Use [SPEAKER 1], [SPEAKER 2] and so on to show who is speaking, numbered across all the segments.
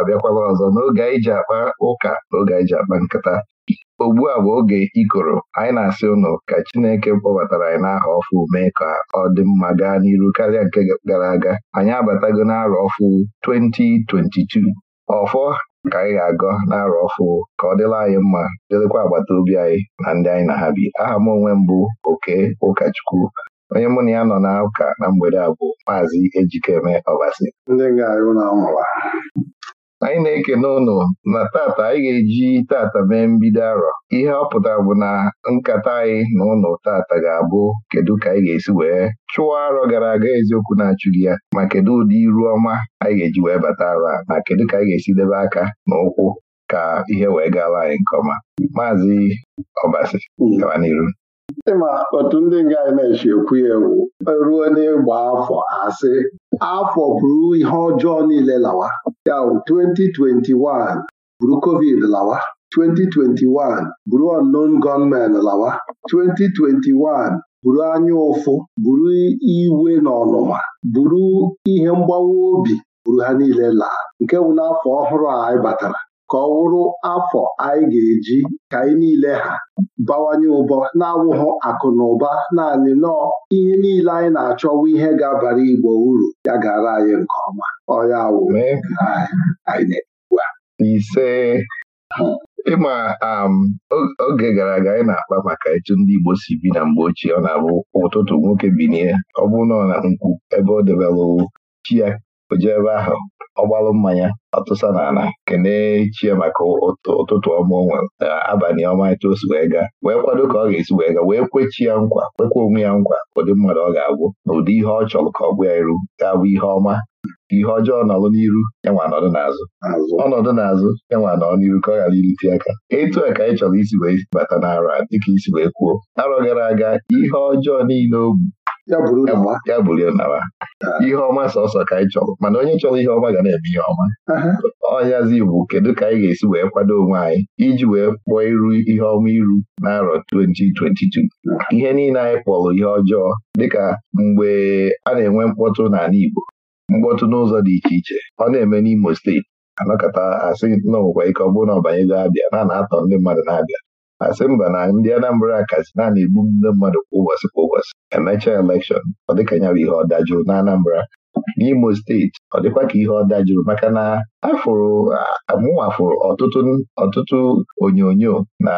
[SPEAKER 1] abịakwala ọzọ n'oge anyị ji akpa ụka n'oge oge anyị ji akpa nkịta, ugbu a bụ oge ikoro anyị na-asị ụnụ ka Chineke kpọbatara anyị n'aha ọfụ mee ka ọ dị mma gaa n'iru karịa nke gara aga anyị abatago n'arọ ọfụ 2022 ọfọ ka anyị ga-agọ n'arọ ọfụ ka ọ dịla anyị mma dịrịkwa agbata obi anyị na ndị anyị na ha bi aha m onwe mbụ oke ụkọchukwu onye mụ na ya nọ na ụka na mgbede a bụ maazị Ejikeme Ọbasi ndị nga na anyị na eke n'ụlọ na tata anyị ga-eji tata mee mbido arọ ihe ọ pụtara bụ na nkata anyị na ụlọ tata ga-abụ kedu ka anyị ga-esi wee chụọ arọ gara aga eziokwu na-achụghị ya ma kedu ụdị iru ọma anyị ga-eji wee bata arọ na kedu ka anyị ga-esi debe aka na ụkwụ ka ihe wee gaala anyị nke ọma maazị ọbasi gaba n'iru ma otu ndị nga anyị na-echi ekwu ewu
[SPEAKER 2] ruo n'ịgba afọ asị afọ bụrụ ihe ọjọọ niile lawa ya bụ 2021 bụrụ covid lawa 2021 bụrụ unknown gunmen lawa 2021 bụrụ anya ụfụ bụrụ iwe na ọnụma bụrụ ihe mgbawa obi bụrụ ha niile laa nke bụ n'afọ ọhụrụ a anyị batara ka ọ wụrụ afọ anyị ga-eji ka anyị niile ha bawanye ụbọ na-awụghụ akụ na ụba naanị nọọ ihe niile anyị na-achọwu ihe ga-abara Igbo uru ya gara anyị nke ọma ọya awụ
[SPEAKER 1] anyị na ise ịma um, oge gara aga anyị na-akpa maka etu ndị Igbo si bi na mgbe ochie ọ na-abụ ụtụtụ nwoke n'ihe, ọ bụrụ na ọ na nkwu ebe ọ debelụ chi ya o jee ebe ahụ ọ gbalụ mmanya ọtụsa n'ala kelee chi maka ụtụtụ ọma o na abalị ọma etu osi wee gaa wee kwado ka ọ ga-esi wee gaa wee kwechi ya nkwa kwekwa onwe ya nkwa ụdị mmadụ ọ ga agwụ na ụdị ihe ọ chọrọ ka ọ bụ ya iru ga ihe ọma ihe ọjọọ nọlụ n'iru ya n'ọdụ n'azụ ọnọdụ n'azụ ya nwa nọrọ n'iru ka ọ ghara irite aka etu a ka anyị chọrọ isi wee bata n'ara dịka isi wee kwuo arọ gara aga ihe ọjọọ niile o ya bụrụ nawa ah. ihe ọma sọsọ ka anyị chọrọ mana onye chọrọ ihe ọma ga na-eme ihe ọma ọnyazi bụ kedu ka anyị ga-esi wee kwado onwe anyị iji wee kpụọ iru ihe ọma iru n'arọ 2022 ah. ihe niile anyị kpọrọ ihe ọjọọ dịka mgbe a na-enwe mkpọtụ n'ala Igbo mkpọtụ n'ụzọ dị iche iche ọ na-eme n'Imo steeti anakọta asị na ike ọ bụrụ na ọbanyego abịa na na-atọ ndị mmadụ na-abịa asị mba na ndị Anambra kasị na ebu egbu ndị mmadụ kwa ụbọchị kwa ụbọchị emechaa elekshọn ọ dịka ya bụ ihe ọ dajụrụ na Anambra n'Imo steeti ọ dịkwa ka ihe ọ dajụrụ maka na afụrụ amụwafụrụ ọtụtụ ọtụtụ onyonyo na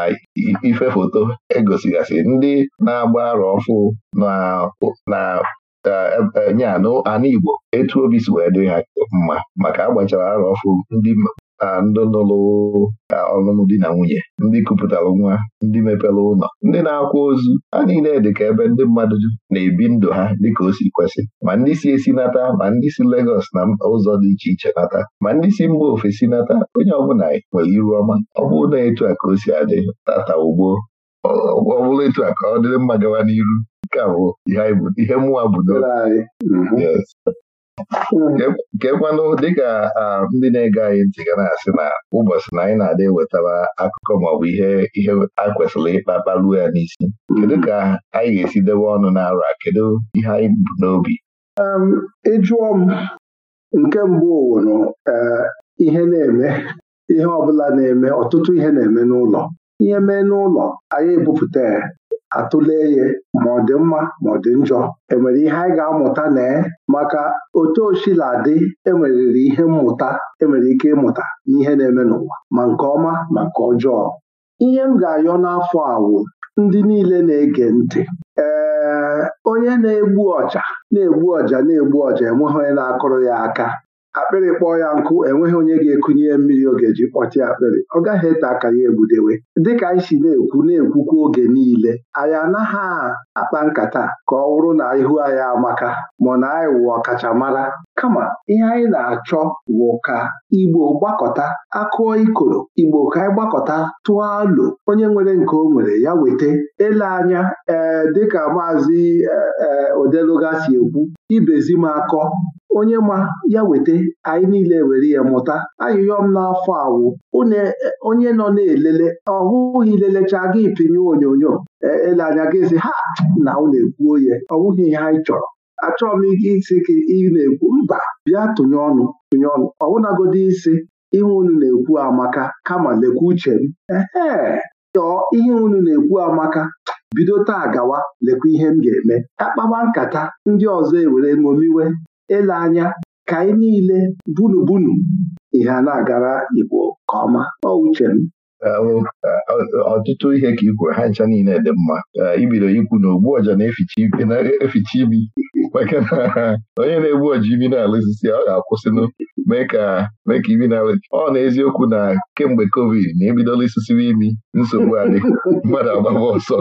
[SPEAKER 1] ife foto egosigasị ndị na-agba arọ ọfụ na nye anụ Igbo etu obi si wee dị ha mma maka agbachara arọ ọfụ ndị ndị ka ọlụlụ di na nwunye ndị kupụtara nwa ndị mepere ụlọ ndị na-akwa ozu ha niile dị ka ebe ndị mmadụ na-ebi ndụ ha dịka o si kwesị ma ndị si esi nata ma ndị si Legọs na ụzọ dị iche iche nata ma ndị si mba ofesi nata onye ọbụla nwere iru ọma ọ bụrụ na etu a ka o si adị tata ugbo ọ bụrụ etu a ka ọ dịrị mma gawa n'iru nke a bụ ihe mụwa bụ mhm. mhm. kekwanụ dịka ndị na-ege anyị ntị ga na-asị na ụbọchị na anyị na-adị ewetara akụkọ maọbụ ihe ihe a kwesịrị ịkpa kparuo ya n'isi mhm. kedu ka anyị ga-esi debe ọnụ n'arọ a kedu ihe anyị bụ n'obi
[SPEAKER 2] ịjụọ m nke mbụ wụrụ eh, ihe na-eme ihe ọbụla na-eme ọtụtụ ihe na-eme n'ụlọ ihe mee n'ụlọ anyị ebupụta atụle ya ma ọ dị mma ma ọ dị njọ enwere ihe anyị ga-amụta na maka otu osila dị e ihe mmụta enwere ike ịmụta n'ihe na-eme n'ụwa ma nke ọma ma nke ọjọọ ihe m ga-ayọ n'afọ awụ ndị niile na-ege ntị ee onye na-egbu ọja na-egbu ọja na-egbu ọja enweghị onye na-akụrụ ya aka akpịrị kpọọ ya nkụ enweghị onye ga-ekunye mmiri oge ji kpọchi akpịrị ọ gaghị ete aka ya egbudewe dịka anyị si na-ekwu na-ekwukwa oge niile anyị anaghị akpa nkata ka ọ wụrụ na ihu anyị amaka ma na anyị wụ ọkachamara kama ihe anyị na-achọ wụ ka Igbo gbakọta akụọ ikoro Igbo ka anyị gbakọta tụọ alo onye nwere nke o nwere ya weta ele anya ee eh, dịka maazị ee eh, eh, si ekwu ibezi m akọ onye ma ya weta anyị niile were ya mụta m n'afọ awụ e, onye nọ na-elele ọhụghị lelechaa gị pinye onyonyo e, ele anya gị si, ha na unu ekwuo ya ọ ihe anyị chọrọ achọrọ m ike isi gị ị na-ekwu mba bịa tụnye ọnụ tụnye ọnụ ọbụnagodi isi ihe unu na-ekwu amaka kama lekwa uche m ee tọọ ihe unu na-ekwu amaka bido taa gawa lekwa ihe m ga-eme Akpama nkata ndị ọzọ ewere ṅomiwe ele anya ka anyị niile bunu bunu
[SPEAKER 1] ihe a na-agara Igbo ka ọma ọ m ọtụtụ ihe ka i ha ncha niile dị mma ibido ikwu na ogbu ọja na-eficha imi maka na onye na-egbu ọja imi na-ala ọ ga-akwụsịnụ mee ka imi na-ala ọ na eziokwu na kemgbe covid na ebidola isisiwe imi nsogbu adị mmadụ agbaba ọsọ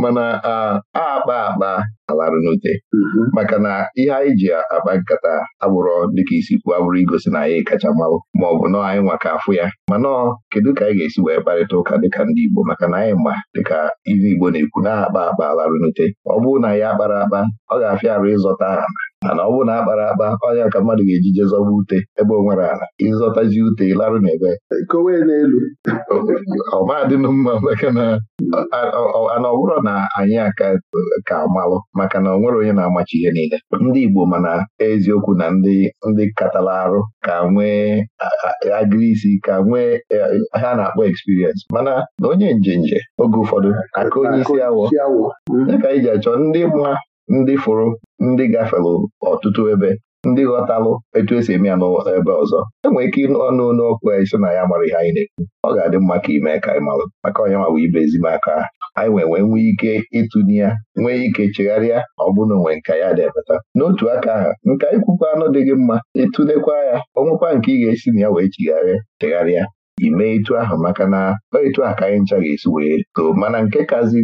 [SPEAKER 1] mana a akpa akpa alarụ n'ute mm-hmm. maka na ihe anyị ji akpa nkata agbụrọ dịka isi kwu abụrụ igosi na anyị kacha mmanwụ ma ọ bụ nọọ anyị nwaka afụ ya ma nọọ kedu ka anyị ga-esi wee kparịta ụka dịka ndị Igbo maka na anyị ma dịka ihe Igbo na-ekwu na akpa akpa alarụ n'ute ọ bụrụ na ya akpara akpa ọ ga-afịa arụ ịzọta aha. mana ọ bụrụ na akpara akpa ọnya ka mmadụ ga-eji jezọba ute ebe o nwere ala ịzọtazi ute larụ n'ebe kowe n'elu ọmadịnụ mma maka na ana ọ bụrụ na anyị aka ka amalụ maka na ọ nwere onye na-amachi ihe niile ndị Igbo mana eziokwu na ndị ndị katala arụ ka nwee agịrị isi ka nwee e, ha na-akpọ eksperiensị mana na onye njenje oge ụfọdụ aka onye isi awọ dịka anyị ji achọ ndị mma ndị fụrụ ndị gafere ọtụtụ ebe ndị ghọtalụ etu esi eme ya n'ebe ọzọ enwere ike ọnụ n'okwu anyị sị na ya mara ihe anyị na-ekwu ọ ga-adị mma ka ime ka anyị malụ maka onye ma bụ ibe ezimaka aka, anyị nwee nwee nwee ike ịtụnye ya nwee ike chegharịa ọ bụrụ na onwe nka ya na n'otu aka ahụ nka ikwukwa anụ dị gị mma ịtụnekwa ya nwekwa nke ị ga-esi na ya wee chigharịa chegharịa ime etu ahụ maka na etu a ka anyị ncha ga-esi wee too mana nke kazi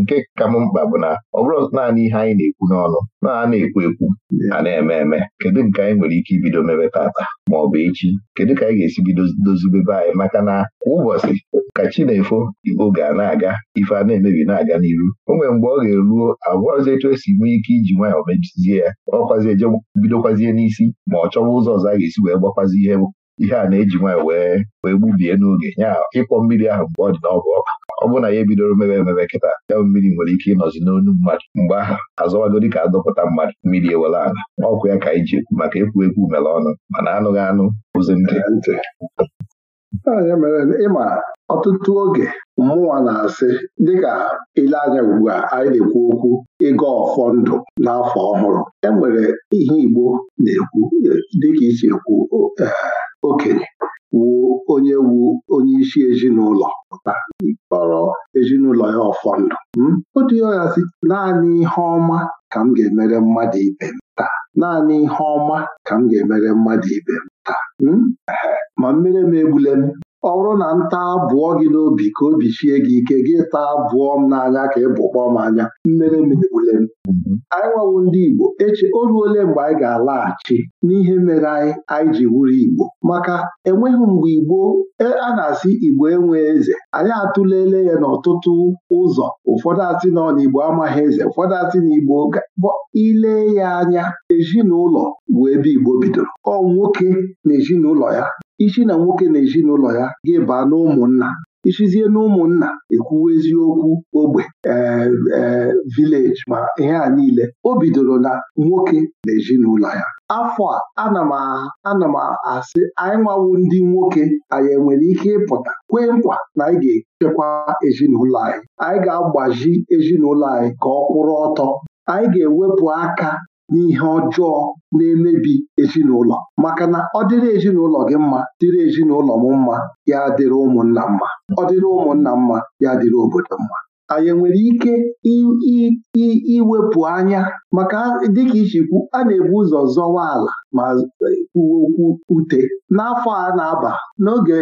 [SPEAKER 1] nke ka m mkpa bụ na ọ bụrụ naanị ihe anyị na-ekwu n'ọnụ na a na-ekwu ekwu a na-eme eme kedu nke anyị nwere ike ibido mebe tata ma ọ bụ echi kedu ka anyị ga-esi bido dozibebe anyị maka na kwa ụbọchị ka chi na-efo oge a na-aga ife a na-emebi na-aga n'iru o nwere mgbe ọ ga-eruo agwọzi etu esi nwee ike iji nwayọọ mebizie ya ọkwazi eje bidokwazie n'isi ma ọ chọwa ụzọ ọzọ a ga-esi wee gbakwazi ihe ihe a na-eji nwaanyị wee wee gbubie n'oge ya ịkpọ mmiri ahụ mgbe ọ dị n'ọbụ ọkụ ọ bụrụ na ya ebidoro mebe emebe kịta ya mmiri nwere ike ịnọzi n'onu mmadụ mgbe aha azọwago dịka adọpụta mmadụ mmiri ewere ala ọkụ ya ka anyị ji ekwu maka ekwu ekwu mere ọnụ mana anụghị anụ ụzi ntị
[SPEAKER 2] ya mere ịma ọtụtụ oge mmụọ na-asị dịka ile anya ugbu a anyị na-ekwu okwu ịga ọfọ ndụ n'afọ ọhụrụ enwere ihe Igbo na-ekwu e, dịka isi ekwu e, okenye wuo onye wu onye isi ezinụlọ pụta kpọrọ ezinụlọ ya ọfọndụ o hmm? dịghasị naanị ihe ọma ka m ga-emere mmadụ ibe m taa naanị ihe ọma ka m ga-emere mmadụ ibe m taa hmm? ma mmiri m egbule m ọ bụrụ na nta abụọ gị n'obi ka obi chie gị ike gị taa abụọ m n'anya ka ị bụkpọ m anya mmere m. Mhm. anyị nwawo ndị Igbo eche o ruole mgbe anyị ga-alaghachi n'ihe mere anyị anyị ji wuru Igbo maka enweghị mgbe Igbo e, a na-asị Igbo enwe eze anyị atụlele ya n'ọtụtụ ụzọ ụfọdụ asị na ọ amaghị eze ụfọdụ asị na Igbo ile ya anya ezinụlọ bụ ebe Igbo bidoro ọ nwoke na ezinụlọ ya isi na nwoke na ezinụlọ ya gị baa n'ụmụnna isizie n'ụmụnna ekwuwa eziokwu ogbe ee eh, eh, vileji ma ihe a niile o bidoro na nwoke na ezinụlọ ya afọ a ana m asị anyị nwawu ndị nwoke anyị enwere ike ịpụta kwee nkwa na anyị ga-echekwa ezinụlọ anyị anyị ga-agbaji ezinụlọ anyị ka ọ kwụrụ ọtọ anyị ga-ewepụ aka n'ihe ọjọọ na-emebi ezinụlọ maka na ọ dịrị ezinụlọ gị mma dịrị ezinụlọ m mma ya dịrị ụmụnna mma ọ dịrị ụmụnna mma ya dịrị obodo mma anyị nwere ike iwepụ anya maka dịka ichikwu a na-ebu ụzọ zọwa ala ma kwuwe okwu ute n'afọ a na-aba n'oge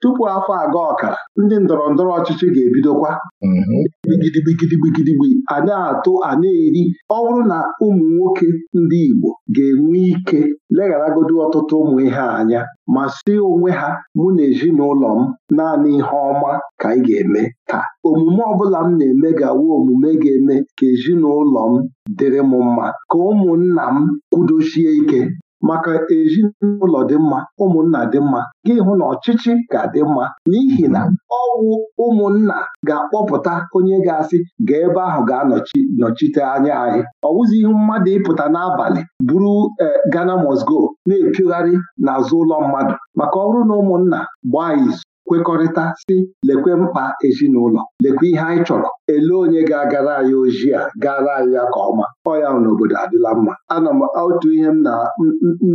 [SPEAKER 2] tupu afọ aga ọkara ndị ndọrọ ndọrọ ọchịchị ga-ebidokwa mm-hmm. bigidibigidibigidigbi a na-atụ a na-eri ọ bụrụ na ụmụ nwoke ndị Igbo ga-enwe ike legharagodi ọtụtụ ụmụ ihe anya ma si onwe ha mụ na ezinụlọ m naanị ihe ọma ka anyị ga-eme ka omume ọbụla m na-eme ga omume ga-eme ka ezinụlọ m dịrị m mma ka ụmụnna m kwudochie ike maka ezinụlọ dị mma ụmụnna dị mma gị hụ na ọchịchị ga-adị mma n'ihi na ọwụ ụmụnna ga-akpọpụta onye ga-asị ga ebe ahụ ga-anọchite anya anyị ọwụzi ihu mmadụ ịpụta n'abalị buru e, Ghana must go na-epiogharị n'azụ ụlọ mmadụ maka ọrụ na ụmụnna gbaa izu kwekọrịta si lekwe mkpa ezinụlọ lekwe ihe anyị chọrọ ele onye ga-agara anyị ojii a gara anyị ya ka ọma ọya n'obodo adịla mma ana m otu ihe m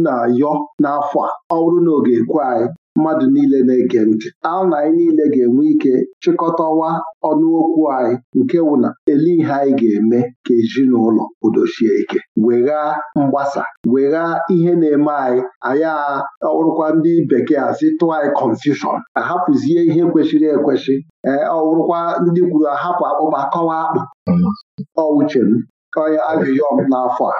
[SPEAKER 2] na-ayọ n'afọ a ọ bụrụ na oge ekwe anyị mmadụ niile na-ege ntị na anyị niile ga-enwe ike chịkọtawa ọnụokwu anyị nke wụna ele ihe anyị ga-eme ka ezinụlọ kwudosie ike wegha mgbasa wegha ihe na-eme anyị anyị ọwụrụkwa ndị bekee asị tụọ anyị confusion ahapụzie ihe kwesịrị ekwesị ee ọwụrụkwa ndị kwuru ahapụ akpụkpa kọwa akpụ ọ uche m n'afọ a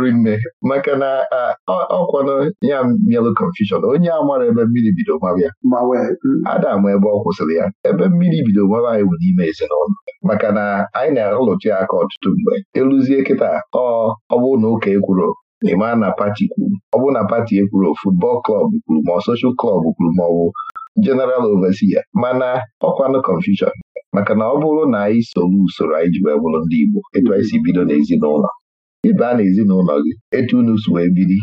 [SPEAKER 1] riri nne maka na ọkwanụ ya bịalụ confusion onye a mara ebe mmiri bido mabịa mm. ada ebe ọ kwụsịrị ya ebe mmiri bido mara anyị bụ n'ime ezinụlọ maka na anyị na-arụlụtụ ya aka ọtụtụ mgbe eluzie kịta ọ bụrụ na ụka ekwuru ị na pati kwuru ọ bụrụ na pati ekwuru futbọl klọb kwuru ma ọ soshal klọb kwuru ma ọ bụ jeneral overseer mana ọkwanụ confusion maka na ọ bụrụ na anyị soro usoro anyị ji wee bụrụ ndị Igbo etu anyị si bido n'ezinụlọ ịbaa n'ezinụlọ gị etu unu si wee biri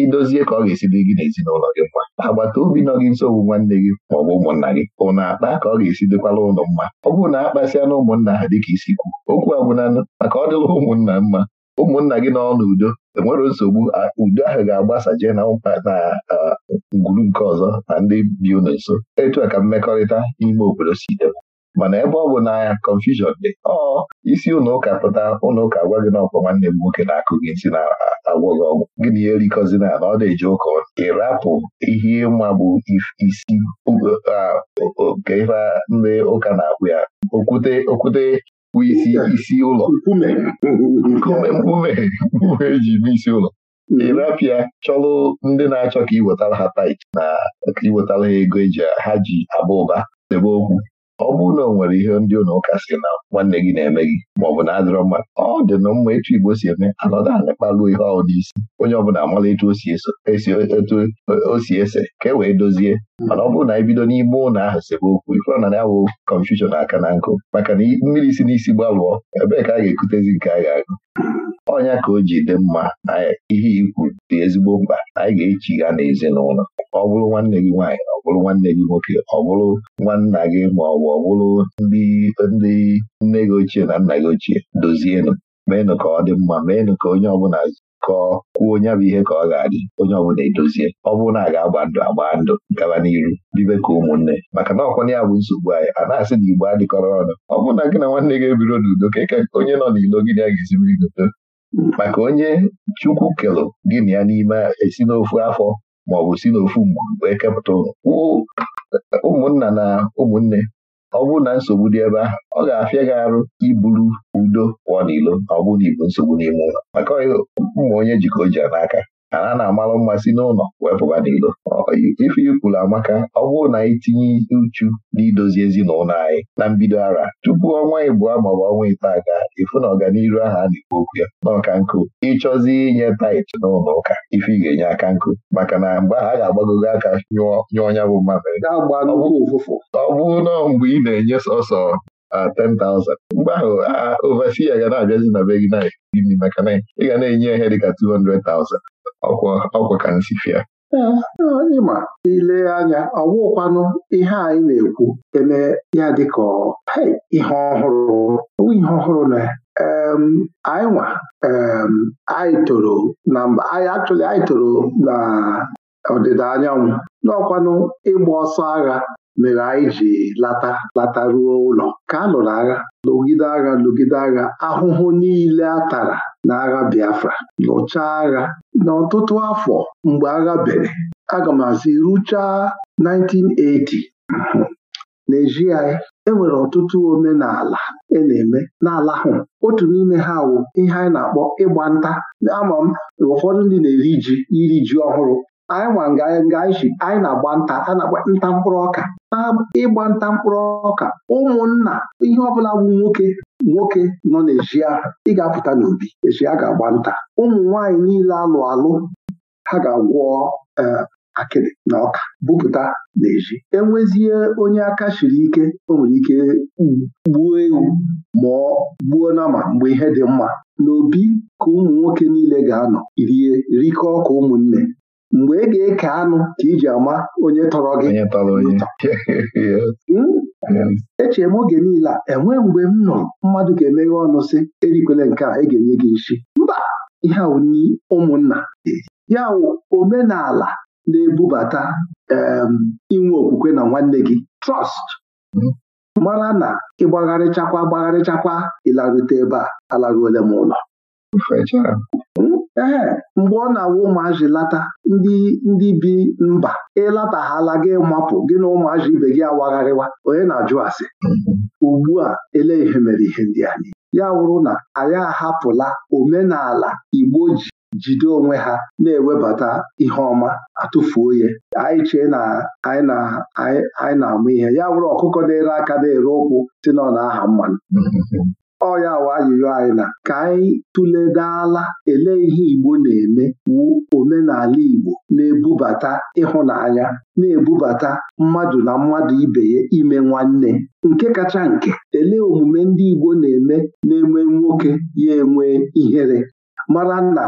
[SPEAKER 1] idozie ka ọ ga-esi dị gị n'ezinụlọ gị mma agbata obi nọ gị nso bụ nwanne gị ma ọ bụ ụmụnna gị ụnụ akpa ka ọ ga-esi dịkwala ụlọ mma ọ bụrụ na akpasịa na ụmụnna ha dịka isi kwu okwu abụnanụ maka ọ dịla ụmụnna mma ụmụnna gị nọ n'udo enwere nsogbu udo ahụ ga-agbasa jee na ngwuru nke ọzọ na ndị bi ụlọ nso etu a ka mmekọrịta n'ime obodo si debe mana ebe ọ bụ n'anya confusion dị ọ isi ụlọ ụka pụta ụlọ ụka gwa gị na ọkwa nwanne m nwoke na-akụ gị ntị na-agwọ gị ọgwụ gịnị ya erikọzina na ọ na-eji ụka ịrapụ ihe ịma bụ isi nke ife ndị ụka na-akwụ ya okwute okwute bụ isi isi ụlọ nkume mkpume eji bụ isi ụlọ ịrapịa chọlụ ndị na-achọ ka iwetara ha tait na ka iwetara ha ego eji ha ji aba ụba debe okwu ọ bụrụ na ọ nwere ihe ndị ụlọ ụka si na nwanne gị na-eme gị ma ọ bụ na adịrọ mma ọ dị na mma etu Igbo si eme anọdụ anyị kpaluo ihe dị isi onye ọbụla amala etu o si ese ka e wee dozie mana ọ bụrụ na anyị bido n'ime ụlọ ahụ sebe okwu ifụrụ na ya wụ kọnfushọn aka na nkụ maka na mmiri si n'isi gbalụọ ebee ka a ga-ekutezi nke a ga-agụ ọnya ka o ji dị mma na ihe ikwu dị ezigbo mkpa anyị ga-echi ha n'ezinụlọ ọ bụrụ nwanne gị nwaanyị ọ bụrụ nwanne gị nwoke ọ bụrụ nwanna gị ma ọ bụ ọ bụrụ ndị ndị nne gị ochie na nna gị ochie dozienụ meenụ ka ọ dị mma meenụ ka onye ọbụla kọọ kwuo onye bụ ihe ka ọ ga-adị onye ọbụla edozie ọ bụrụ na a ga-agba ndụ agba ndụ gaba n'iru bibe ka ụmụnne maka na ọkwụna ya bụ nsogbu anyị a na-asị na igbo adịkọrọ ọnụ ọ bụrụ na gị na nwanne gị ebiro n'udo ka eke onye nọ n'ilo gị na ga-esibiri godo maka onye chukwu kelụ gị na ya n'ime esi n'ofu afọ maọbụ si n'ofu mgbe wee kepụta ụmụnna na ụmụnne ọ bụrụ na nsogbu dị ebe ahụ ọ ga-afịa gị arụ iburu udo pụọ n'ilo ọ bụ na ibu nsogbu n'ime ụlọ maka mma onye jikọ o n'aka ana na-amalụ mmasị si n'ụlọ wee n'ilo ife ikwulu amaka ọ bụrụ na anyị tinye uchu n'idozi ezinụlọ anyị na mbido ara tupu ọnwa ịbụọ maọbụ ọnwa ite aga ịfụ na ọganiru ahụ a na-ekwu okwu ya n'ọka nkụ ịchọzi inye tait n'ụlọ ụka ife ị ga-enye aka nkụ maka na mgbe ha ga-agbagogo aka nyụọ ọnya bụ mmamịrị ọ bụrụ na mgbe ị na-enye sọsọ 10,000 mgbe ahụ overseer ga na-abịazi na be gị na ị ga na-enye ihe dịka 200,000 ọkwa ọkwa ka nsifi
[SPEAKER 2] ịma ile anya ọ wụkwanụ ihe anyị na-ekwu eme ya dịka ihe ọhụrụ ihe ọhụrụ na anyị nwa anyị toro na mba anyị anyị toro na ọdịda anyanwụ n'ọkwanụ ịgba ọsọ agha mere anyị ji lata lata ruo ụlọ ka a lụrụ agha lụgide agha lụgide agha ahụhụ niile a tara n'agha Biafra lụchaa agha n'ọtụtụ afọ mgbe agha bere aga m asị ruchaa 1980 n'eji enwere ọtụtụ omenala e na-eme n'ala ahụ otu n'ime ha wụ ihe anyị na-akpọ ịgba nta ama m ụfọdụ ndị na-eri ji iri ji ọhụrụ anyị nwa nga anyị ji anyị na-agba nta a na-agba nta mkpụrụ ọka na ịgba nta mkpụrụ ọka ụmụnna ihe ọbụla bụ nwoke nwoke nọ n'ezi ị ga-apụta n'obi ezi a ga-agba nta ụmụ nwaanyị niile alụ alụ ha ga-agwọ e, akịrị na ọka bupụta n'ezi enwezie onye aka siri ike o nwere ike gbuo ewu ma gbuo nama mgbe ihe dị mma n'obi ka ụmụ nwoke niile ga-anọ rie rikọ ọka ụmụnne mgbe ị ga-eke anụ ka iji ama onye tọrọ gị hmm? eche m oge niile a enwee mgbe m nụrụ mmadụ ga-emeghe ọnụ sị erikwele nke a ga-enye gị nshi mba ihe ni ụmụnna ya omenala na-ebubata inwe okwukwe na nwanne gị trọst hmm. mara na ịgbagharịchakwa gbagharịchakwa ịlarute ebe a alaruole m ụlọ ee mgbe ọ na awụ ụmụazị lata ndị ndị bi mba ịlataghala gị mapụ gị na ụmụazị ibe gị awagharịwa onye na-ajụ asị ugbu a ele ihe mere ihe ndị anyị ya wụrụ na anyị ahapụla omenala Igbo ji jide onwe ha na-ewebata ihe ọma atụfuo ya anyị chee na anyị na-amụ ihe ya wụrụ ọkụkọ na-ere aka na-ere ụkwụ si na ọ na-aha mmanụ ọya wa ajụjụ anyị na ka anyị tụledala ele ihe Igbo na-eme wu omenala Igbo na-ebubata ịhụnanya na-ebubata mmadụ na mmadụ ibe ya ime nwanne nke kacha nke ele omume ndị Igbo na-eme na-enwe nwoke ya enwe ihere mara na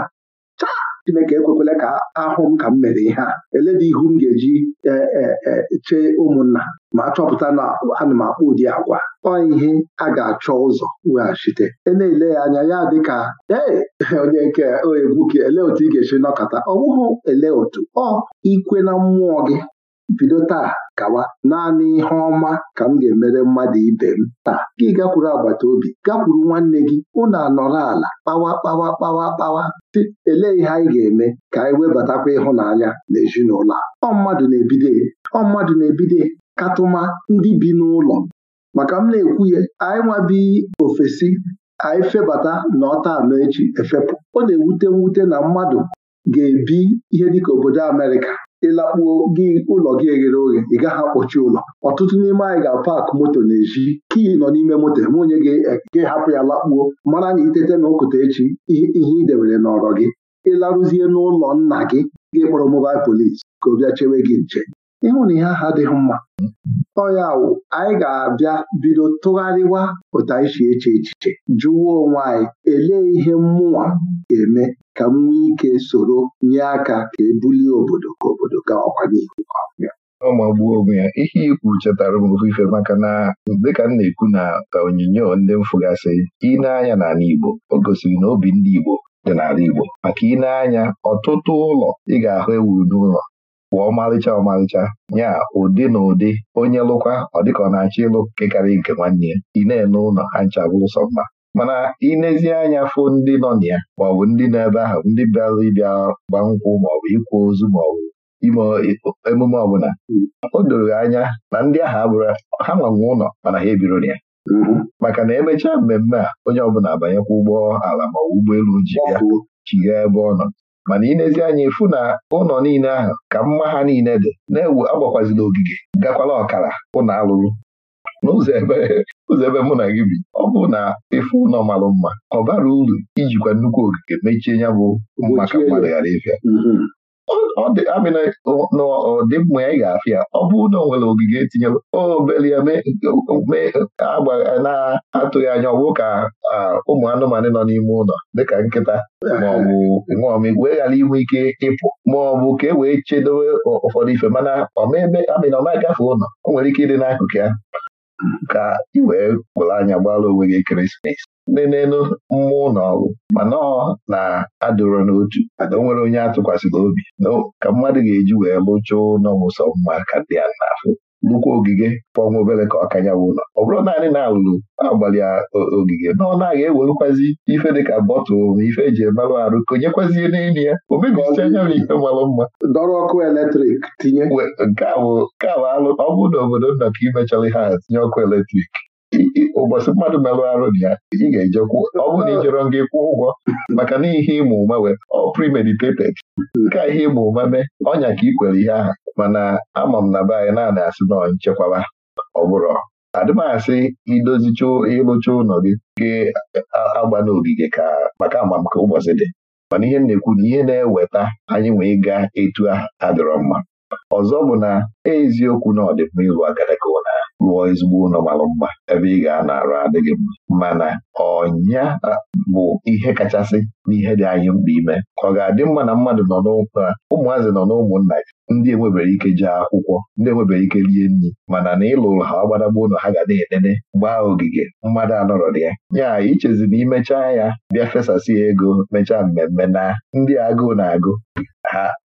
[SPEAKER 2] Chineke ekwekwela ka ahụ m ka m mere ihe a dị ihu m ga-eji chee ụmụnna ma chọpụta na ana m akpọ ụdị agwa ọ ihe a ga-achọ ụzọ weghachite e na-ele ya anya ya dị ka ee onye nke egwu gị ele otu ị ga-esi nọkọta ọ bụghị ele otu ọ ikwe na mmụọ gị bido taa gawa naanị ihe ọma ka m ga-emere mmadụ ibe m taa gị gakwuru agbata obi gakwuru nwanne gị unu anọrọ ala kpawa kpawa kpawa kpawa dị elee ihe anyị ga-eme ka anyị webatakwa ịhụnanya na ezinụlọ ọ mmadụ na-ebido ọ mmadụ na-ebido katụma ndị bi n'ụlọ maka m na-ekwu ya anyị nwabi ofesi anyị febata na ọta anọ echi efepụ ọ na-ewute mwute na mmadụ ga-ebi ihe dịka obodo Amerịka ịlakpuo gị ụlọ gị eghere oghe ị gaghị akpọchi ụlọ ọtụtụ n'ime anyị ga-apak moto n'ezi Kii nọ n'ime moto m onye eh, gị hapụ ya lakpuo mara na itete na ụkụta echi ihe ị debere n'ọrọ gị ịlarụzie n'ụlọ nna gị gị kpọrọ mobail polis ka ọ bịa chewe gị nche ịhụ na ihe aha adịghị mma ọya wụ anyị ga-abịa bido tụgharịwa otu anyị si eche echiche jụwa onwe anyị elee ihe mmụọ ga-eme ka m nwee ike soro nye aka ka ebulie
[SPEAKER 1] obodo ka obodo ga ọkwa n'ihu ọbịa ọ magbuo onwe ya ihe ikwu chetara m ofu maka na dịka m na-ekwu na onyinyo ndị mfụgasị ineanya n'ala Igbo o gosiri na obi ndị Igbo dị n'ala Igbo maka ineanya ọtụtụ ụlọ ị ga-ahụ ewuru n'ụlọ bụ ọmalịcha ọmalịcha ya ụdị na ụdị onye lụkwa ọ dịka ọ na-achọ ịlụ nke nke nwanne ya ị na-ene ụlọ ha nchabụ ụsọ mma mana inezie anya fụ ndị nọ na ya maọbụ ndị nọ ebe ahụ ndị bịara ịbịa gba nkwụ maọbụ ịkwa ozu maọbụ ime emume ọbụla o doro anya na ndị ahụ abụrụ ha nwanwe ụlọ mana ha ebiro ya mm-hmm. maka na emechaa mmemme a onye ọbụla abanyekwa ụgbọ ala ma ụgbọelu ji ya chigha ebe ọ nọ mana inezi anya ịfụ na ụlọ niile ahụ ka mma ha niile dị na-ewu agbakwazila ogige gakwala ọkara ụlọ alụrụ n'ụzọ ebe mụ na gị bi ọ bụ na ịfụ ụlọ marụ mma ọ bara uru ijikwa nnukwu ogige mechie ya bụ maka mmadụ ghara ịbịa mm-hmm. ọ dị na ọdịmma ya ga-afịa ọ bụ na nwere ogige etinye obele na-atụghị anya ọgwụ ka ụmụ anụmanụ nọ n'ime ụlọ dịka nkịta maọbụ nṅụọmigwe ghara inwe ike ịpụ maọbụ ka e wee chedowe ụfọdụ ife mana ọmebe amịna ọ ụlọ o nwere ike ịdị n'akụkụ ya ka ị wee anya gbara onwe gị ekeresimesi na-enu mmụọ na ọgụ mana ọ na adụrọ n'otu ada o nwere onye atụkwasịrị obi ka mmadụ ga-eji wee lụchụọ n'ọmụsọ mma ka dị ya n'afọ nnukwu ogige ọnwa obere ka ọkanya wụlọ ọ bụrụ naanị na alụlụ agbalị ogige na ọ naghị ewerukwazi ife dịka bọtụlụ ma ife eji emerụ arụ konyekwazie n'elu ya o m ife marụ mma dọrọ ọkụ eletrik tinye nke a bụ alụ ọ bụrụ na obodo nna ka ha ihe tinye ọkụ eletrik ụbọchị mmadụ merụ arụ dị ya ị ga-ejekwu ọ bụrụ na ị jọrọ nga ụgwọ maka na ihe ịma ụma wee ọ premeditated nke a ihe ịma ụma mee ọnya ka ị kwere ihe aha mana ama m na be anyị naanị asị na nchekwaba ọ asị adịmasị idozicha ịlụcha ụlọ gị gị agba n'ogige ka maka m ka ụbọchị dị mana ihe na-ekwu na ihe na-eweta anyị wee gaa etu adịrọ mma ọzọ bụ na eziokwu na ọdịmma ịlụ agadaga lụọ ezigbo ụlọ mara mma ebe ị ga-anarụ adịghị mma mana ọnya bụ ihe kachasị n'ihe dị anyị mkpa ime ka ọ ga-adị mma na mmadụ nọ ụmụazị nọ n'ụmụnna ya ndị enwebere ike jee akwụkwọ ndị enwebere ike rie nri mana na ịlụ ụlọ ha gbadagba ụlọ ha ga na-enene gbaa ogige mmadụ anọrọ dị ya ya ichezi na imechaa ya bịa fesasị ego mechaa mmemme na ndị agụụ na-agụ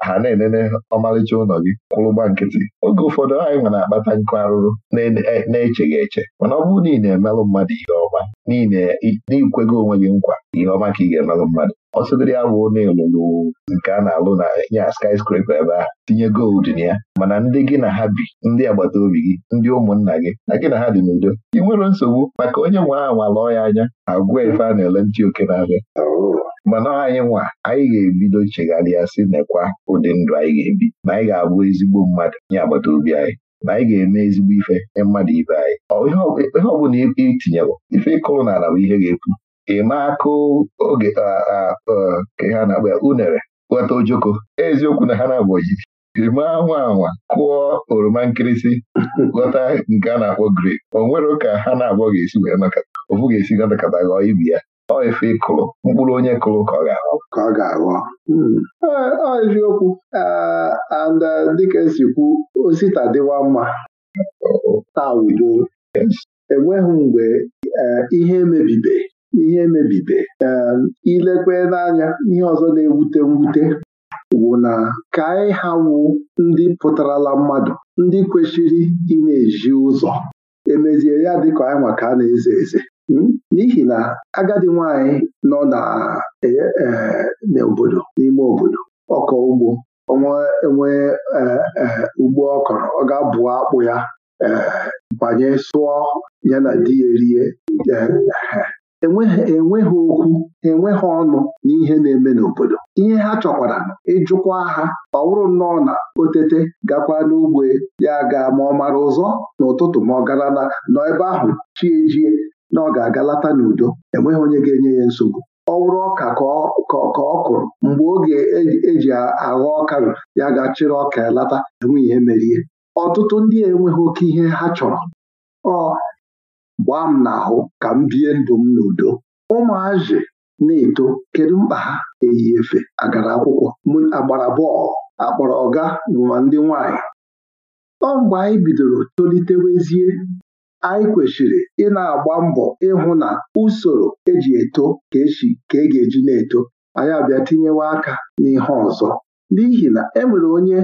[SPEAKER 1] ha na-enene ọmalịcha ụlọ gị kwụrụgba nkịtị oge ụfọdụ anyị nwere akpata nkụ arụrụ e, na-echeghị eche mana ọ bụrụ na ị na-emelụ mmadụ ihe ọma n'ikwego onwe gị nkwa ihe ọma ka ị ga-emelụ mmadụ ọ sịgoro ya na nke a na-alụ na ya skyscraper ebe a tinye gold na ya mana ndị gị na ha bi ndị agbata obi gị ndị ụmụnna gị na gị na ha dị n'udo ị nwere nsogbu maka onye nwe anwa lụọ ya anya agwa ife a na-ele ntị oke n'ahịa mana anyị nwa anyị ga-ebido chegharịa sị nekwa ụdị ndụ anyị ga-ebi na anyị ga-abụ ezigbo mmadụ nye agbata obi anyị na anyị ga-eme ezigbo ife nye mmadụ ibe anyị ihe ọ bụla ife ịkụrụ n'ala bụ ihe ga-epu ịma akụ oge ka ha na-akpa ya unere ghọta ojoko eziokwu na ha na-abụ ojibi ịma anwa anwa kụọ oroma nkịrịsị ghọta nke a na-akpọ grip o nwere ka ha na-abụọ ga-esi wee maka ofu ga-esi gọtakata ghọọ ibi ya ọ efe ịkụrụ mkpụrụ onye kụrụ ka ọ ga-aghọ ka ọ ga-aghọ hmm.
[SPEAKER 2] ọ eziokwu and uh, dịka esi kwu osita dịwa mma taa udo enweghị mgbe eh, ihe mebibe ihe emebibe um, ilekwe n'anya ihe ọzọ na-ewute mwute wụ na ka anyị ha wụ ndị pụtarala mmadụ ndị kwesịrị ị na-eji ụzọ emezie ya ka anyị maka a na-eze eze hmm? n'ihi na agadi nwanyị nọ e, e, n'obodo n'ime obodo ọkọ ugbo ọnwa enwee e, ugbo ọ kọrọ ọ ga-abụ akpụ ya banye sụọ ya na di ya erie enweghị okwu enweghị ọnụ na ihe na-eme n'obodo ihe ha chọkwara ịjụkwa ha ọ bụrụ nnọọ na otete gakwa n'ugbo ya ga ma ọ mara ụzọ n'ụtụtụ ma ọ gara na nọ ebe ahụ chi ejie na ọ ga-aga lata n'udo enweghị onye ga-enye ya nsogbu ọ wụrụ ọka ka ọ kụrụ mgbe oge eji e aghọ ọkarụ ya ga ọka ya lata enweghị ihe ọtụtụ ndị enweghị oke ihe ha chọrọ ọ gbaa m n'ahụ ka m bie ndụ m n'udo ụmụazị na-eto kedu mkpa ha eyi efe agara akwụkwọ agbara bọọlụ akpọrọ ọga ma ndị nwanyị ọ mgbe anyị bidoro tolitewezie anyị kwesịrị ị na-agba mbọ ịhụ na usoro eji eto ka esi ka e ga-eji na-eto anyị abịa tinyewe aka n'ihe ọzọ n'ihi na enwere onye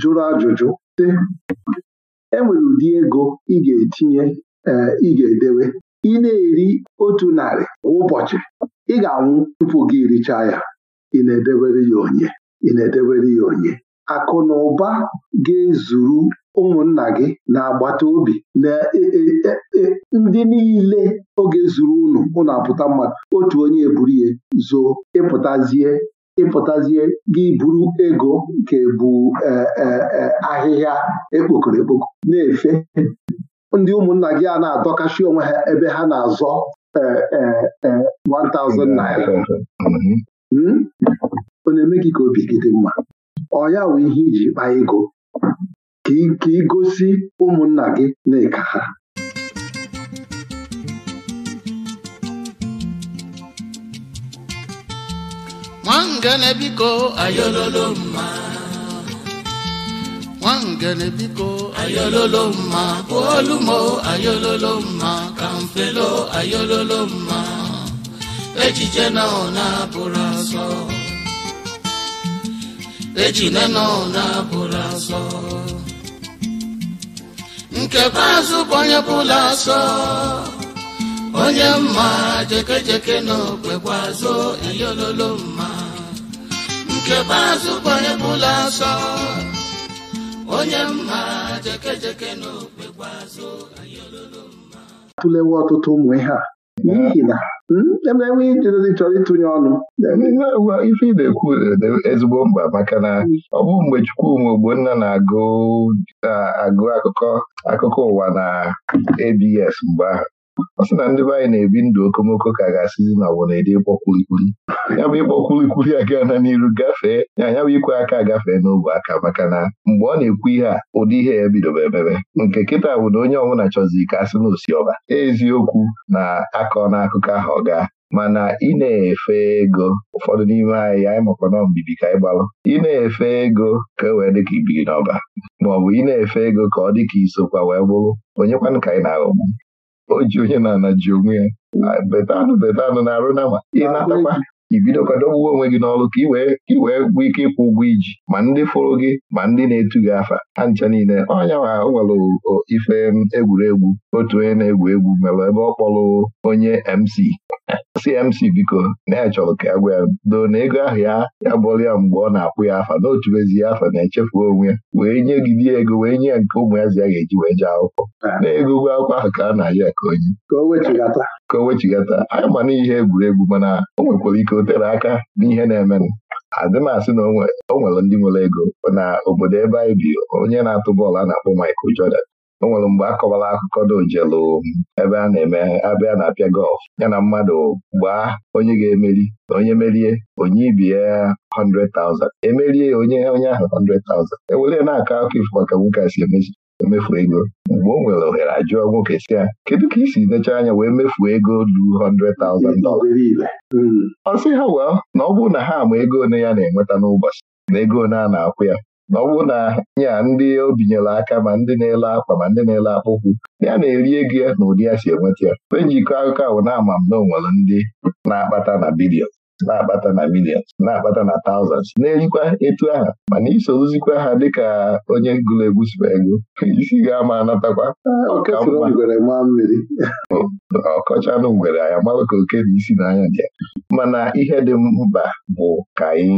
[SPEAKER 2] jụrụ ajụjụ sị enwere ụdị ego ị ga-etinye ị ga-edewe ị na-eri otu narị kwa ụbọchị ị ga-anwụ tupu gị richaa ya ị na-edebere ya onye ị na-edebere ya onye akụ na ụba ga-ezuru ụmụnna gị na agbata obi na e, e, e, ndị niile oge zuru unu unu apụta mmadụ otu onye eburu ya zoo ịpụtazie ịpụtazie gị buru ego nke bụ ahịhịa ekpokoro ekpoko na-efe ndị ụmụnna gị a na adọkashi onwe ha ebe ha na-azọ 1000 e, e, e, naira hmm? ọ na-eme gị ka obi gị dị mma ọya bụ ihe iji kpaa ego ka ị gosi ụmụnna gị na ịka ha
[SPEAKER 1] biko ayololo mma nwangele biko ayololo mma bolumo ayololo mma mfelo ayololo mma echiche na ọ na-abụrụ asọ echine na ọ na-abụrụ asọ nkekwa azụ bụ onye bụla asọ onye mma jekejeke na okpekwa azụ ayololo mma nkekwa azụ bụ onye bụla asọ onye mma jeke jeke n'okpe gbazụ anyị olulu
[SPEAKER 2] mma atụlewe ọtụtụ ụmụ ihe a n'ihi na hmm, enwe ijedezi chọrọ ịtụnye ọnụ
[SPEAKER 1] ife ị na-ekwu e, ezigbo mkpa maka na hmm. ọ bụ mgbe Chukwuma Ogbonna na-agụ agụ akụkọ akụkọ ụwa na ABS mgbe ahụ ọ sị na ndị be anyị na-ebi ndụ okomoko ka ga-asịzi na ọbụ na-ede ịkpọ kwulikwuli ya bụ ịkpọ kwulikwuli aga na n'iru gafee ya ya bụ ikwe aka gafee n'ogwe aka maka na mgbe ọ na-ekwu ihe a ụdị ihe ya bidobe emebe nke kịta bụ na onye ọbụla chọzi ka asị na osiọba eziokwu na akọ n'akụkọ ahụ ọ gaa mana ị na-efe ego ụfọdụ n'ime anyị anyị makwa na mbibi ka anyị gbalụ ị na-efe ego ka e wee ka ibiri n'ọba maọbụ ị na-efe ego ka ọ dịka isokwa wee bụrụ onyekwanụ ka anyị na-aghọgbu o ji onye na ana ji onwe ya betanụ betanụ na-arụ nama ị na-atakwa ibidokwa onwe gị n'ọrụ ka ị wee gwụ ike ịkwụ ụgwọ iji ma ndị fụrụ gị ma ndị na-etu gị afa ha ncha niile ọnya wa nwere ife egwuregwu otu onye na-egwu egwu mere ebe ọ kpọrọ onye MC CMC biko na ya chọrọ ka ya gwa ya doo na ego ahụ ya ya bụrụ ya mgbe ọ na-akpụ ya afa na otubezie ya afa na-echefu onwe wee nye gidi ego wee nye ya nke ụmụ ya zi ya ga-eji wee jee akwụkwọ ah. na ego ụgwọ akwụkwọ ahụ ka a na-aja ya ka onye ka o wechigata anyị ma n'ihe egwuregwu mana o nwekwara ike o tere aka n'ihe na-emenụ adị asị na o nwere ndị nwere ego na obodo ebe anyị bi onye na-atụ bọọlụ a na-akpọ Michael Jordan o nwere mgbe a akụkọ n'ojelu ebe a na-eme abịa na-apịa gọlf ya na mmadụ gbaa onye ga-emeri na onye merie onye ibie ya 100,000 emerie onye onye ahụ 100,000 ewere na-akọ akụkọ ifo maka nwoke a si emefu e ego mgbe o nwere ohere ajụọ nwoke si ya kedu ka isi nechaa anya wee mefu ego du 100,000 hmm. ọ sị ha wee na ọ bụrụ na ha ama ego one ya na-enweta n'ụbọchị na ego one a na-akwụ ya na ọ bụrụ na ya ndị o binyere aka ma ndị na-ele akwa ma ndị na-ele akpụkwụ ya na-eri ego ya na ụdị ya si enweta ya onye njikọ akụkọ ahụ na ama m na onwere ndị na-akpata na bidio. na abata na millions na-akpata na thousands na-erikwa etu aha mana isoruzikwa ha dịka onye gụrụ egwu sụpa ego isi ga-ama anatakwa ọkọchanụ ngwere anya mawa ka oke dị isi n'anya dị mana ihe dị mkpa bụ ka anyị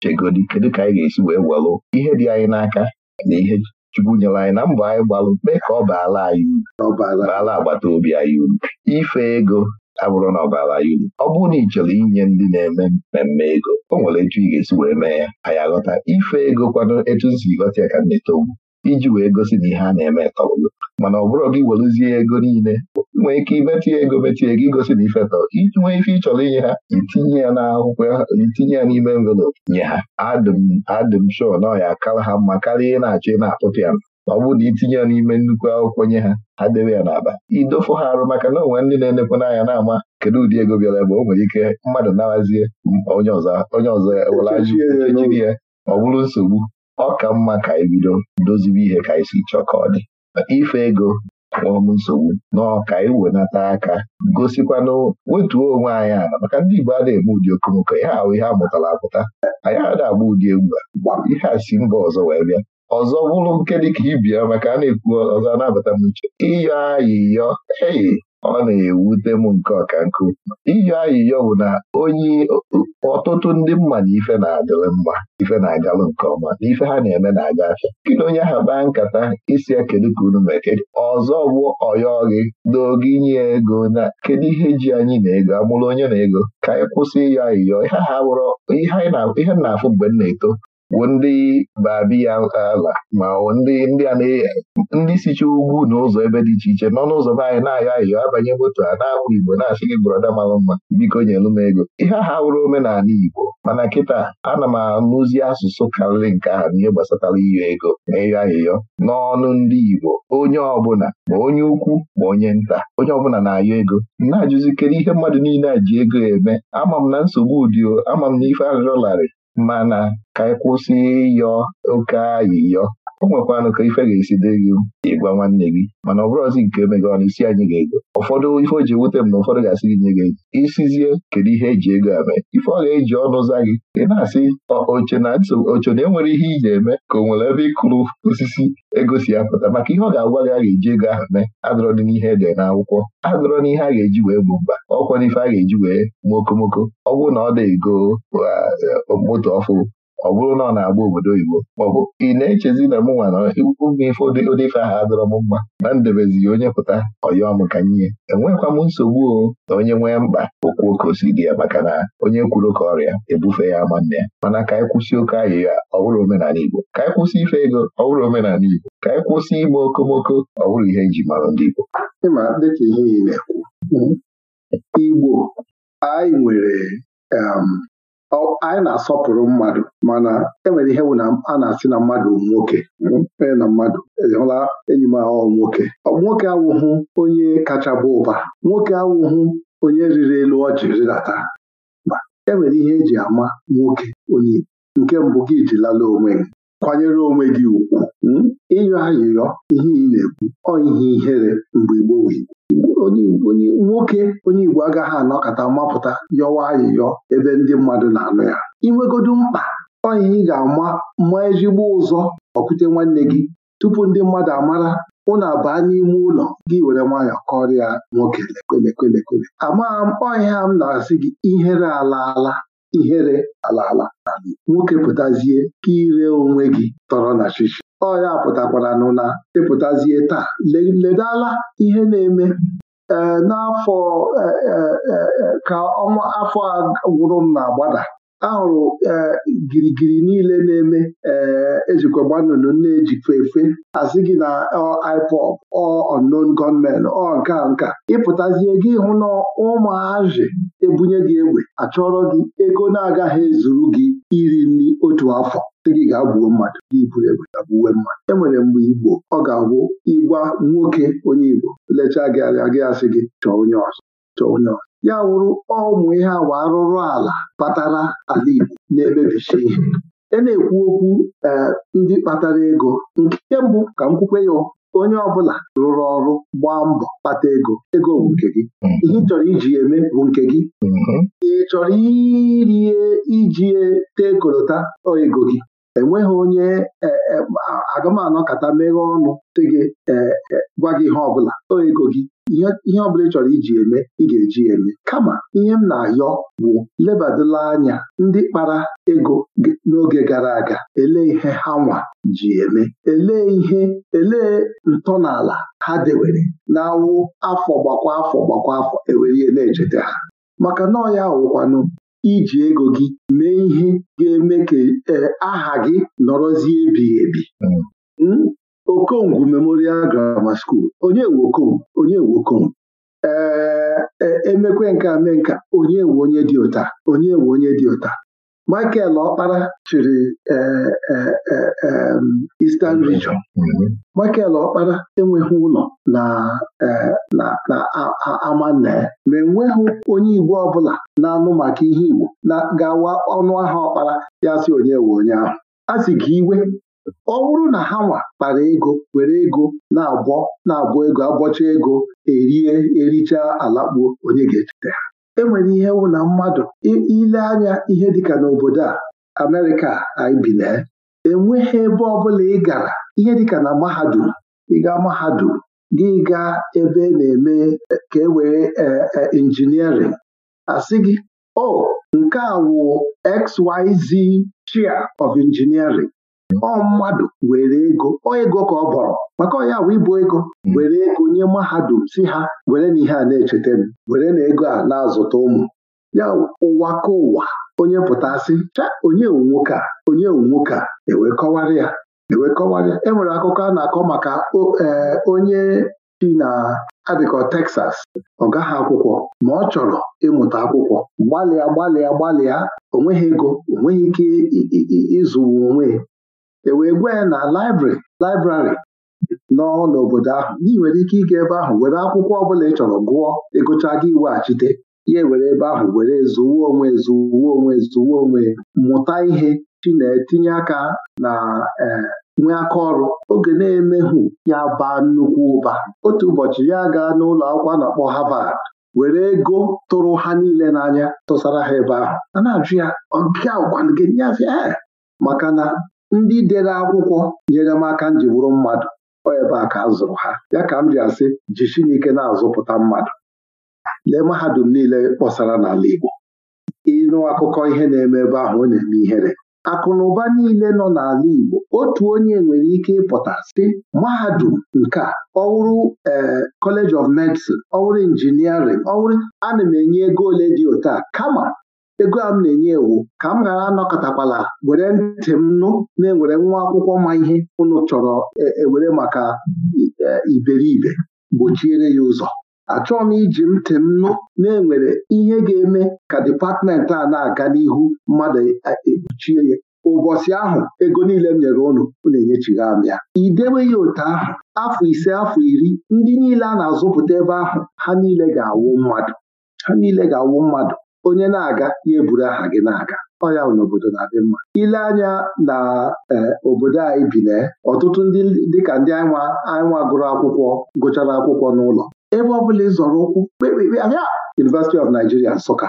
[SPEAKER 1] chegodi kedu ka anyị ga-esi wee gwalụ ihe dị anyị n'aka na ihe Chukwu nyere anyị na mbọ anyị gbalụ mee ka ọ baala anyị uru baala agbata obi anyị uru ife ego abụrụ na ọbara ya uru ọ bụrụ na ị chọrọ inye ndị na-eme mmemme ego o nwere etu ị ga-esi wee mee ya anyị aghọta ife ego kwado etu m si ghọta ya ka m na iji wee gosi na ihe a na-eme tọrọgo mana ọ bụrụ gị werezie ego niile nwee ike ya ego metinye ego igosi na ife tọrọ iji nwee ife ị chọrọ inye ha itinye ya n'akwụkwọ itinye ya n'ime envelopu nye ha adịm adịm shọ na ya ha mma karịa ị na-achọ ị na-akpụpịa m ọ bụrụ na itinye ya n'ime nnukwu akwụkwọ nye ha ha debe ya n'aba Idofu ha arụ maka na onwe ndị na-enekwa n'anya na-ama kedu ụdị ego bịara ebe o nwere ike mmadụ narazie onye ọzọ ewelajiri ya ọ bụrụ nsogbu ọ ka mma ka ebido dozibe ihe ka anyị chọọ ka ọ dị ife ego kpọọm nsogbu n'ọka iwenata e aka gosikwanụ wetuo onwe anyị ala maka ndị Igbo a eme ụdị okomoko ihe ahụ ihe a mụtara apụta anyị ada agba ụdị egwu a ihe a si mba ọzọ wee bịa ọzọ bụrụ nke dịka ibia maka a na-ekwu ọzọ na-abata m uche ịyọ ayịyọ eyi ọ na-ewute m nke ọka nkụ ịyọ ayịyọ bụ na onye ọtụtụ ndị mma na ife na-adịrị mma ife na-agalụ nke ọma na ife ha na-eme na-aga afịa kedu onye aha kpaa nkata isi ya kedu ka unu mee ọzọ bụ ọyọ gị n'oge inye ego na kedu ihe ji anyị na ego amụrụ onye na ego ka anyị kwụsị ịyọ ayịyọ ihe ha bụrụ ihe anyị na-afụ mgbe m na-eto bụ ndị babiya ala ma ndị ndị a ndị sicha ugwu na ụzọ ebe dị iche iche nọ n'ụzọ be anyị na-ayọ ayọ abanye moto a na ahụ Igbo na-asị gị brọda mara mma biko nyelu m ego ihe ha wụrụ omenala Igbo mana kịta ana m anụzi asụsụ karịrị nke ahụ n'ihe gbasatara iyo ego na ịyọ ayịyọ n'ọnụ ndị Igbo onye ọbụla ma onye ukwu ma onye nta onye ọbụla na-ayọ ego na Ajụzikere ihe mmadụ niile a ji ego eme ama m na nsogbu ụdị ama m na ife arịrịọ mana ka anyị e kwụsị ịyọ oke ayịyọ o nwekwanụ ka ife ga-esi dị gị ịgwa nwanne gị mana ọ bụrụzi nke emega ọnụ isi anyị ga-ego ụfọdụ ife o ji ewute m na ụfọdụ ga-asị gị nye gị ego isizie kedu ihe eji ego eme ife ọ ga-eji ọnụ za gị ị na-asị oche na oche na enwere ihe iji eme ka o nwere ebe ịkụrụ osisi ego si apụta maka ihe ọ ga-agwa gị a ga-eji ego ahụ mee adọrọ dị n'ihe ede n'akwụkwọ na ihe a ga-eji wee bụ mba ọkwa n'ife a ga-eji wee mokomoko ọ bụrụ na ọ dị ego uh, moto ọfụ ọ bụrụ na ọ na-agba obodo oyibo maọbụ ị na-echezi na mụnwa na m ife odefe ife ahụ m mma na ndebezighị onye pụta ọyọ m ka nye enwekwa m nsogbu o na onye nwee mkpa okwuo ka o si dị ya maka na onye kwuru ka ọrịa ebufe ya ama nne ya mana ka anyị kwụsị oke ahịhịa ọ omenala Igbo ka anyị kwụsị ife ego ọ omenala Igbo ka anyị kwụsị ime okomoko ọ bụrụ ihe eji mara ndị Igbo dịka ihe Igbo anyị nwere
[SPEAKER 2] um, anyị na-asọpụrụ mmadụ mana enwere ihe na a na-asị na mmadụ nwoke onye hmm, na mmadụ e hụla enyi m ahụ nwoke nwoke awụhụ onye kacha bụ ụba nwoke awụhụ onye riri elu ọjị rịdata ma enwere ihe eji ama nwoke onye nke mbụ gị ji onwe gị kwanyere onwe gị ugwu hmm, ịyọ ayịyọ ihe ị na-ekwu ọ ihe ihere mgbe gboo onye nwoke onye Igbo agaghị anọkọta mapụta yọwa ayịyọ ebe ndị mmadụ na-anụ ya inwegodu mkpa onye ị ga-ama ma ezigbo ụzọ ọkute nwanne gị tupu ndị mmadụ amara ụnụ abaa n'ime ụlọ gị were nwayọọ kọrịa nwoke lekwelekwelekwele amagha m ọhịa m na-asị gị ihere ala ala ihere ala ala nwoke pụtazie ka ire onwe gị tọrọ na chichi ọ ya pụtakwara nụ na ịpụtazie taa ledala ihe na-eme n'afọ e, e, e, ka ọnwa afọ a gwụrụ m na-agbada ahụrụ e, girigiri niile na-eme e, ejikọgba nnụnụ na-ejikwa efe asị gị na e, iPop, ọ unknown gunmen ọ nke nka ịpụtazie gị hụ na ụmụazị ebunye gị egbe achọrọ gị ego na-agaghị ezuru gị iri nri otu afọ dị gị gaa gbuo mmadụ gị buru egbe ga gbuwe mmadụ enwere mgbe Igbo ọ ga-agwụ ịgwa nwoke onye Igbo lechaa gị anya gị asị gị chọọ onye ọzọ chọọ onye ọzọ ya wụrụ ụmụ ihe awa arụrụ ala kpatara ala Igbo na-emebicha ihe e na-ekwu okwu eh, ndị kpatara ego nke mbụ ka nkwukwe kwukwe ya onye ọbụla rụrụ ọrụ gbaa mbọ kpata ego ego bụ nke gị mm-hmm. ihe chọrọ iji eme bụ nke gị mm-hmm. ị chọrọ iri iji ego gị enweghị onye e, e, kata meghe ọnụ dị gị e, gwa gị ihe ọbụla o ego gị ihe ọbụla ị chọrọ iji eme ị ga-eji eme kama ihe m na-ayọ bụ lebadala anya ndị kpara ego n'oge gara aga elee ihe ha nwa ji eme elee ihe elee ntọala ha dewere na-awụ afọ gbakwa afọ gbakwa afọ ewere ihe na-echeta ha maka nọọ ya wụkwanụ iji ego gị mee ihe ga-eme ka e, aha gị nọrọzie ebighị ebi hmm. hmm? Okongwu Memorial Grammar School onye wokom onye wokom ee e, e, emekwe nke ame nka onye nwe onye dị ụta onye nwe onye dị ụta Michael Ọkpara chịrị e, e, e, Eastern Region Michael Ọkpara enweghị ụlọ na na amanne ma enweghị onye Igbo ọbụla na-anụ maka ihe Igbo na gawa ọnụ aha ọkpara ya si onye we onye ahụ a sị gị iwe ọ bụrụ na ha nwa kpara ego were ego na-abọ na-abọ ego abọcha ego erie ericha alakpuo onye ga-echeta ha enwere ihe wụ na mmadụ ile anya ihe dịka n'obodo a Amerịka anyị bile enweghị ebe ọbụla ị gara ihe dịka na mahadum ịga mahadum gị gaa ebe na-eme e, ka e wee e, e, injiniarịn asị gị o oh, nke a wụ XYZ chia of engineering ọ mmadụ were ego ọ ego ka ọ bọrọ maka ọnya bụ ịbụ ego were ego nye mahadum si ha were na ihe a na-echeta m were na ego a na-azụta ụmụ ya ụwa ka ụwa onye pụtasị cha onye nwoke a onye nwoke a ewee ya ewee kọwara ya enwere e akụkọ a na-akọ maka e, onye chi na-adịkọ Texas ọ gaghị akwụkwọ ma ọ chọrọ ịmụta akwụkwọ gbalịa gbalịa gbalịa onweghị ego onweghị ike ịzụwa onwe e wee gwa ya na laịbrị laịbrarị nọ n'obodo ahụ ị nwere ike ịga ebe ahụ were akwụkwọ ọbụla ị chọrọ gụọ ịgụcha gị iweghachite ya were ebe ahụ were zụwa onwe zụwa onwe zụwa onwe mụta ihe chi na-etinye aka na e, nwee aka ọrụ oge na-emehụ ya baa nnukwu ụba otu ụbọchị ya gaa n'ụlọ akwụkwọ a na-akpọ Harvard were ego tụrụ ha niile n'anya tụsara ha ebe ahụ a na-ajụ ya ọgịa gwanụ gị nye maka na ndị dere akwụkwọ nyere m aka nji bụrụ mmadụ ebe a ka a zụrụ ha ya ka m ji asị ji Chineke na-azụpụta mmadụ lee mahadum niile kpọsara n'ala Igbo ịnụ akụkọ ihe na-eme ebe ahụ ọ na-eme ihere akụ na ụba niile nọ n'ala Igbo otu onye nwere ike ịpụta sị mahadum nke a ọwụrụ eh, College of Medicine ọwụrụ injiniarịn ọwụrụ ana m enye ego ole dị otu kama ego a m na-enye ewu ka m ghara anọkọtakwala were ntị m nụ na-ewere nwa akwụkwọ ma ihe ụnụ chọrọ ewere e, maka e, iberibe gbochiere ya ụzọ achọghị m iji ntị m nụ na-enwere ihe ga-eme ka dipatmenti a na-aga n'ihu mmadụ ekpuchie e, ya ụbọchị ahụ ego niile m nyere ụnụ na enyechighị m ya idewe ya otu ahụ afọ ise afọ iri ndị niile a na-azụpụta ebe ahụ ha niile ga-awụ mmadụ ha niile ga-awụ mmadụ onye na-aga ya eburu aha gị na-aga ọya n'obodo na-adị mma ile anya na e, obodo anyị bi na ọtụtụ ndị dịka ndị anyịnwa anyịnwa gụrụ akwụkwọ gụchara akwụkwọ n'ụlọ ebe ọ bụla ịzọrọ ụkwụ kpekpekpe ahịa! University of Nigeria Nsụka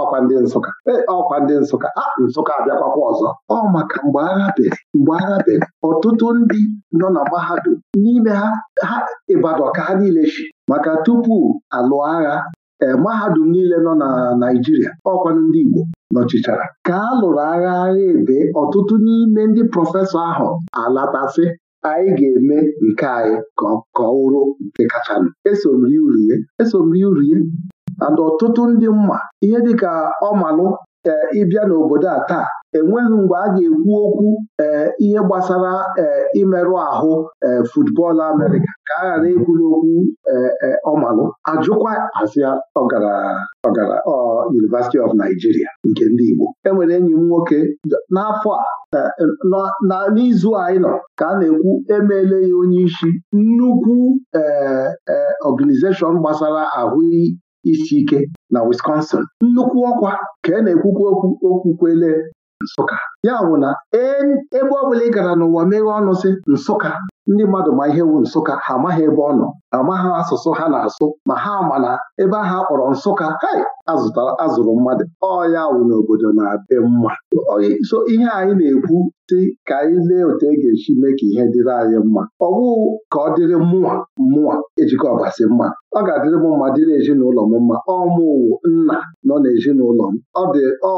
[SPEAKER 2] ọkwa ndị Nsụka e, ọkwa ndị Nsụka a Nsụka abịakwakwa ọzọ ọ maka mgbe agha bere mgbe agha bere ọtụtụ ndị nọ na mahadum n'ime ha ha ịbadọka ka ha niile chi maka tupu alụọ agha Eh, mahadum niile nọ na Naịjirịa ọkwanụ ndị Igbo nọchichara ka a lụrụ agha agha ebe ọtụtụ n'ime ndị prọfesọ ahụ alatasị anyị ga-eme nke anyị ka ọ wụrụ nke kachanụ esomri urie esomri urie and ọtụtụ ndị mma ihe dị dịka ọmalụ ee eh, ịbịa n'obodo a taa enweghị mgbe a ga-ekwu okwu eh, ihe gbasara ee eh, imerụ ahụ ee football Amerịka ka a ghara ekwu n'okwu ọmalụ ajụkwa asịa ọgara University of Nigeria nke ndị Igbo enwere enyi m nwoke n'afọ a n'izu anyị nọ ka a na-ekwu emeela ya onye isi nnukwu ee gbasara ahụ isi ike na Wisconsin nnukwu ọkwa ka e na-ekwukwu okwu okwukwele Nsụka ya bụ na e, ebe ọ bụla ị gara n'ụwa meghe ọnụ sị Nsụka ndị mmadụ ma ihe wu Nsụka ha amaghị ebe ọ nọ amaghị asụsụ ha na-asụ ma ha ma na ebe ahụ akpọrọ Nsụka hei azụrụ mmadụ ọya wụ n'obodo na-adị mma so ihe anyị na-ekwu dị ka anyị lee otu e ga-esi mee ka ihe dịrị anyị mma ọ bụghị ka ọ dịrị mmụọ mmụọ ejikọ ọbasi mma ọ ga-adịrị m mma dịrị ezinụlọ m mma ọ mụwụ nna nọ n'ezinụlọ m ọ dị ọ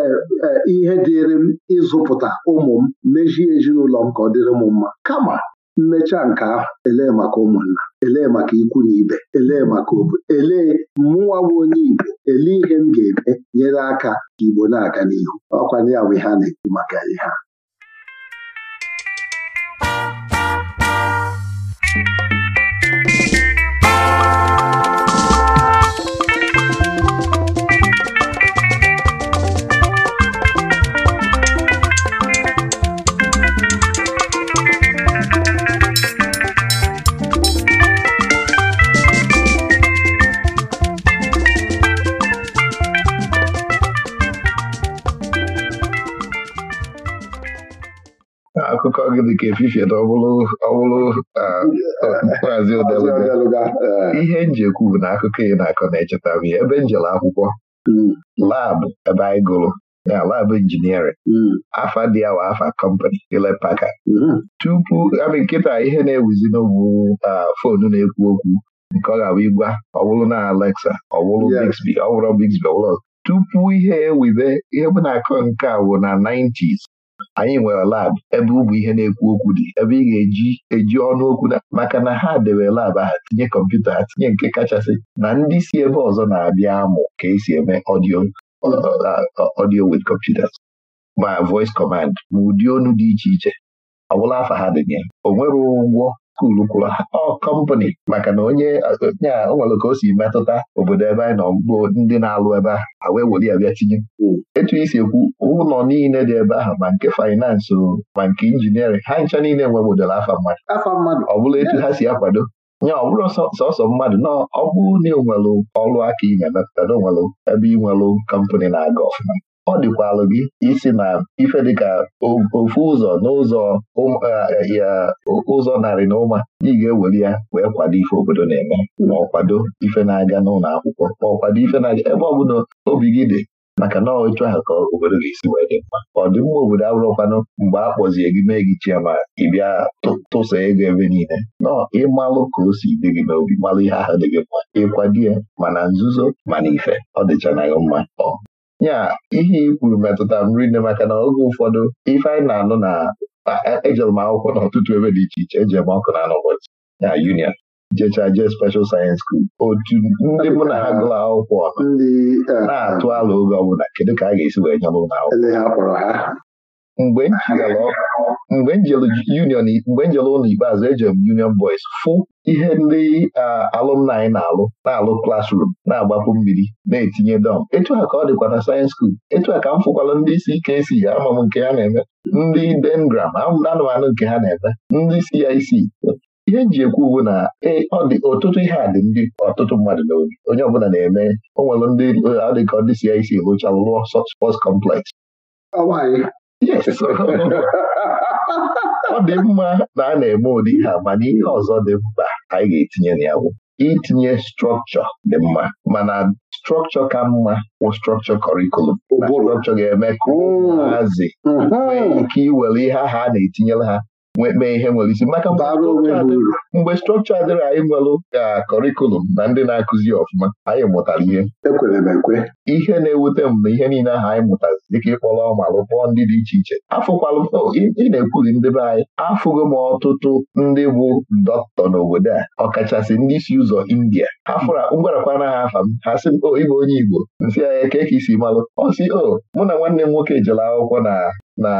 [SPEAKER 2] e, e, ihe dịrị m ịzụpụta ụmụ m mejie ezinụlọ m ka ọ dịrị m mma kama mmecha nke ahụ elee maka ụmụnna elee maka ikwu na ibe elee maka obodo elee mmụnwa bụ onye Igbo elee ihe m ga-eme nyere aka ka Igbo na-aga n'ihu ọkwanye ya bụ ihe a na-ekwu maka ihe a
[SPEAKER 1] akụkọ gị dịka efife ọwụrụ maazị odeluga e. ihe njekwu bụ na akụkọ ị na-akọ na-echeta m ya ebe njele akwụkwọ hmm. labụ ebe anyị gụrụ na labụ injiniarịn hmm. afa dị awa afa kọmpani ilepaka hmm. tupu amị nkịta ihe na-ewuzi n'ogbu fonu na-ekwu okwu nke ọ ga-abụ ịgwa ọwụrụ na Alexa ọwụrụ Bixby ọwụrụ Bixby ọwụrụ tupu ihe ewibe ihe bụ na-akọ nke a bụ na 90s anyị nwere lab ebe ụmụ ihe na-ekwu okwu dị ebe ị ga-eji eji ọnụ okwu maka na ha debe lab ha tinye kọmputa ha tinye nke kachasị na ndị si ebe ọzọ na-abịa amụ ka esi eme ọdio ọdio computers ma voice command ma ụdị ọnụ dị iche iche ọ bụla afa ha dị ya ụgwọ kwulukwuru ọ kọmpanị maka na onye a o nwere ka o si metụta obodo ebe anyị nọ ndị na-alụ ebe a awee weli bịa tinye etu isi ekwu ụlọ niile dị ebe ahụ ma nke faịnansị ma nke injiniarịn ha ncha niile nwe model afa mmadụ ọ bụla etu ha si akwado nya ọ bụrụ sọsọ mmadụ na ọ bụrụ na ị nwelụ ọrụ aka ị na-emepụta na onwelụ ebe ị nwelụ kọmpanị na-aga ọfụma ọ dịkwalụ gị isi na ife dịka ofu ụzọ n'ụzọ ụzọ narị na ụma ị ga eweli ya wee kwado ife obodo na-eme ma ọ kwado ife na-aga n'ụlọ akwụkwọ ma ọ kwado ife na-aga ebe ọ obi gị dị maka na otu ahụ ka obodo gị esi wee dị mma ọdịmma obodo abụrụkwanụ mgbe a kpọzie gị mee gị chiama ịbịa tụsa ego ebe niile nọ ịmalụ ka o si dị gị n'obi malụ ihe ahụ dị gị mma ịkwado ya mana nzuzo mana ife ọ dịchanaghị mma ọ nya ihe i kwuru metụta m rinne maka na oge ụfọdụ ife anyị na-anụ na ejere e m akwụkwọ n'ọtụtụ ebe dị iche iche eji m ọkụ na anụbọchị ya union jechaa jee special science school otu ndị mụ na ha gụrụ akwụkwọ e, na-atụ ala oge ọbụla kedu ka a ga-esi wee nyere ụlọ akwụkwọ mgbe m union mgbe njelu ụlọ ikpeazụ eji m union boys fụ ihe ndị alụmni anyị na-alụ na-alụ klasrum na-agbapụ mmiri na-etinye dọm etu a ka ọ dịkwa na sayensị skuul etu a ka m fụkwala ndị isi ike si ama m nke ha na-eme ndị dengram anụmanụ nke ha na-eme ndị CIC ihe m ji ekwu bụ na e, ọ dị ọtụtụ ihe a dị ndị ọtụtụ mmadụ n'obi onye ọbụla na-eme o nwere ndị ọ dị ka ndị CIC rụchalụ lụọ spọts kọmplex ọ dị mma na a na-eme ụdị ihe mana ihe ọzọ dị mkpa anyị ga-etinye na ya bụ itinye strọkchọ dị mma mana strọkchọ ka mma bụ strọkchọ kọrikulum na strọkchọ ga-eme ka ụmụazị nwee ike iwere ihe ahụ a na-etinyere ha mee ihe nwere isi maka mgbe strọkchọ adịrị anyị nwelụ ka kọrikulum na ndị na-akụzi ọfụma anyị mụtara ihe ekwere m ekwe ihe na-ewute m na ihe niile ahụ anyị mụtara dịka ịkpọrọ ma rụpọọ ndị dị iche iche afụkwalụ oh, ị na-ekwuli ndị anyị afụgo m ọtụtụ ndị bụ dọkịta n'obodo a ọkachasị ndị si ụzọ India afụra fụra ngwarakwana ha afa m ha sị m o oh, ịbụ onye Igbo nsị anya ka isi malụ ọ si o oh, mụ na nwanne m nwoke jere akwụkwọ na na